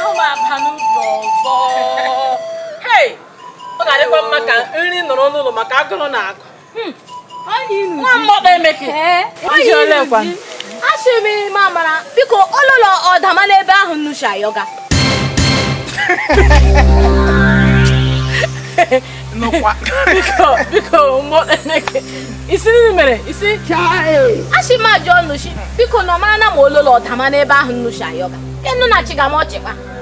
ahụ m aba n'ubi ọzọ ọ ga-adịkwa mma ka nri nọrọ n'ụlọ maka agụrụ na agụ hmm. nwa mmọkpa emeke ji olekwa m biko ụlọ ọdama n'ebe ahụ nnuchi ayọga mere isi achị biko nọ mara na ma ololo ọdama n'ebe ahụ nnuchi yoga kenu na chigamochikpa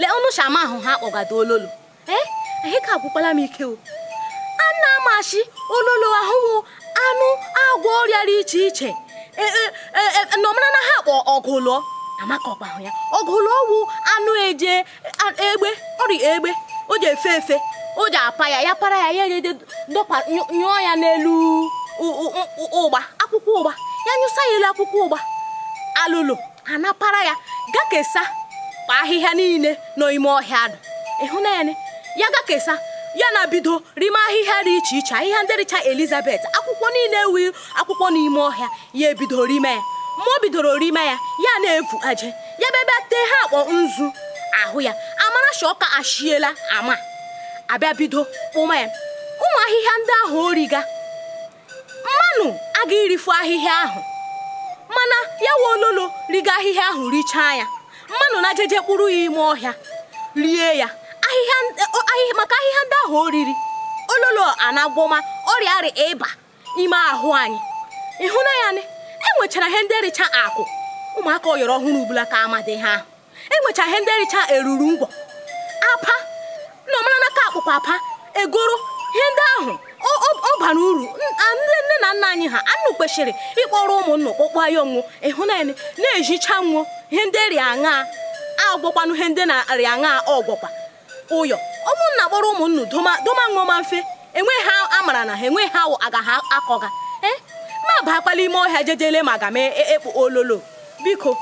lee ọnụ shama ahụ ha kpọgado ololo ee eh? ka agwụkwala m ike o a na-amachi ololo ahụhụ anụ agwọ ọrịa dị iche iche nọmara e, e, e, na ha kpọ ọgụlọ amaka ọkpa ahụ ya ọgụlụ ọwụ anụ eje egbe ọrịa egbe o ji efe efe o ji apa ya ya para ya ya eje dọpa nyụọ ya n'elu ụgba akwụkwọ ụgba ya nyụsa ya elu akwụkwọ ụgba alụlụ anapara ya ga kesa kpa ahịhịa niile n'ime ọhịa ahụ ịhụ naanị ya ga kesa ya na bido rime ahịhịa dị iche iche ahịhịa ndị richa elizabeth akwụkwọ niile ewu akwụkwọ n'ime ọhịa ya ebido rime ya mmụọ bidoro rime ya ya na ebu aje ya bebe tee ha akpọ nzu ahụ ya amara shọka ashiela ama abịa bido kpụma ya ụmụ ahịhịa ndị ahụ origa mmanụ aga irifu ahịhịa ahụ mana ya wa ololo riga ahịhịa ahụ richaa ya mmanụ na jeje kpụrụ ya ime ọhịa rie ya maka ahịhịa ndị ahụ oriri ololo anagwọma ọrịa arị ịba n'ime ahụ anyị ịhụna ya nị enwechara ihe ndị ericha akụ ụmụaka ọyọrọ ọhụrụ ubula ka amadị ha enwechara ihe ndị ericha eruru ngwọ apa na ọmara n'aka akpụkpọ apa egoro ihe ndị ahụ ọ bara uru ndị nna nna anyị ha anụ kwesịrị ịkpọrọ ụmụnna okpokpo ya onwo ịhụnanya na-ejicha nwo ihe ndị rịa aṅa agwọkwanụ ihe ndị na-arịa aṅa ọgwọkwa ụyọ ụmụnna kpọrọ ụmụnna doma ọma mfe enweghị ha amara na ha enweghị ha agaghị akọga ee eh, ma bakpala ime ọhịa jejele ma aga mee e, e, ekpo ololo biko